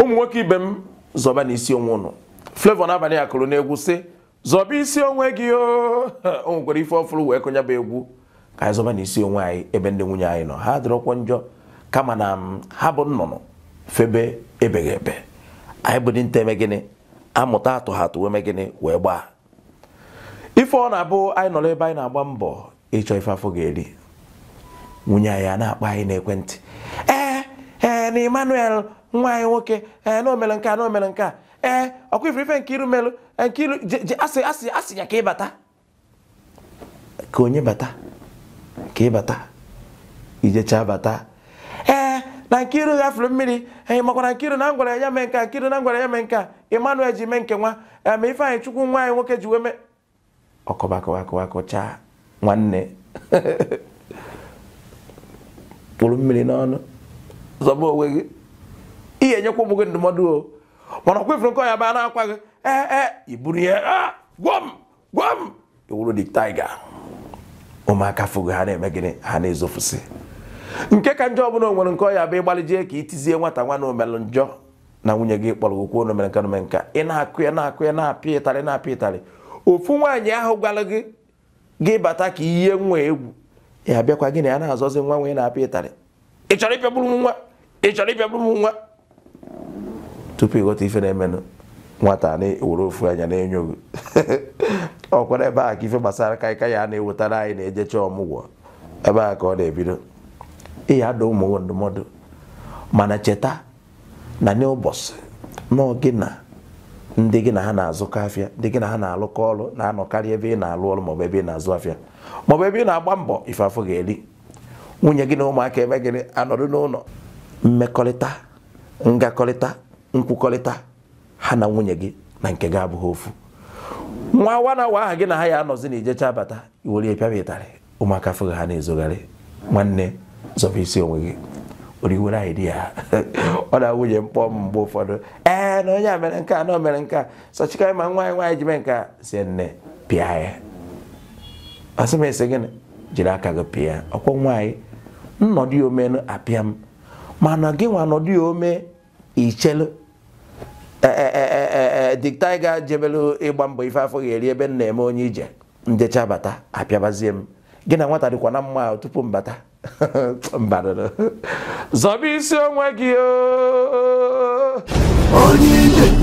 ụmụ nwoke ibe m zọba na isi onwe ụnụ Flavour n'abalị a kụrụ n'egwu sị zọba isi onwe gị o nwekwara ife ọfụrụ wee kụnya bụ egwu ka anyị zọba n'isi onwe anyị ebe ndị nwunye anyị nọ ha dịrọkwa njọ kama na ha bụ nnụnụ febe ebeghị ebe anyị bụ dinta eme gịnị amụta atụ ha atụ gịnị wee gbaa ife ọ na-abụ anyị nọrọ ebe anyị na-agba mbọ ịchọ ife afọ ga-eri nwunye anyị a na akpa anyị n'ekwentị na Emmanuel nwa anyị nwoke ee na omere nke a na nke a ee ọkwa ifere ife nke iru merụ nke iru asị asị asị ya ka ị bata ka onye bata ka ị bata ijecha bata ee na Nkiru ghafere mmiri anyị e, makwara Nkiru na ngwara ya mee nka Nkiru na ngwara ya mee nka Emmanuel ji mee nke nwa e, ma Ifeanyị Chukwu nwa anyị nwoke ji wee mee ọkọbakọbakọbakọchaa nwanne kpụrụ mmiri n'ọnụ zọba onwe gị ihe ga-enyekwa ụmụ gị ndụmọdụ o mana ọkwefere nke ọnya baa na-akwa gị ee ee iburu ihe gwọ m gwọ iwuru dị taiga ụmụaka fụgo ha na-eme gịnị ha na-ezofusi nke ka njọ ọbụla onwere nke ọya bụ ịgbalịjie ka itizie nwata nwa na omelụ njọ na nwunye gị kpọrọ okwu na omere nke nome nka ị na-akụ ya na-akụ ya na-apịa ịtarị na-apịa ịtarị ofu nwaanyị ahụ gwara gị gị bata ka ihe nwa egwu ya bịakwa gị na ya na-azọzi nwa nwee na-apịa ịtarị ị chọrọ ịpịagburu nwa ị chọrọ ịbịa bụrụ m nwa tupu ịghọta ife na-emenụ nwata na-ewere ofu anya na-enyo gị ọkwara ebe a ka ife gbasara kaịka ya na-ewetara anyị na-ejecha ọmụgwọ ebe a ka ọ na-ebido ịya ada ụmụ ndụmọdụ mana cheta na n'ụbọchị gị na ndị gị na ha na-azụkọ afịa ndị gị na ha na-alụkọ ọrụ na-anọkarị ebe ị na-alụ ọrụ maọbụ ebe ị na-azụ afịa maọbụ ebe ị na-agba mbọ ife afọ ga-eri nwunye gị na ụmụaka ebe gịnị anọdụ n'ụlọ mmekọrịta ngakọrịta nkwukọrịta ha na nwunye gị na nke gị abụghị ofu nwa awa na awa aha gị na ha ya anọzi na ijecha abata iwere pịaba ịtarị ụmụaka fụghị ha na-ezogharị nwanne zọba isi onwe gị oriwere anyị di ya ọ na nwunye mkpọ mgbe ụfọdụ ee na onye a mere nke a na o mere nke a sọchikarị ma nwaanyị nwaanyị ji mee nke a sie nne pịa ya asị m esi gịnị jiri aka gị pịa ọkwọ nwaanyị nnọdụ omenu apịa m mana gị nwa nọdụ ya ome ichelu e, e, e, diktiga jebelu ịgba mbọ ife afọ ga-eri ebe nna na-eme onye ije ndecha bata apịabazie m gị na nwata dịkwa na mma tupu mbata zọba isi onwe gị oh. onye ije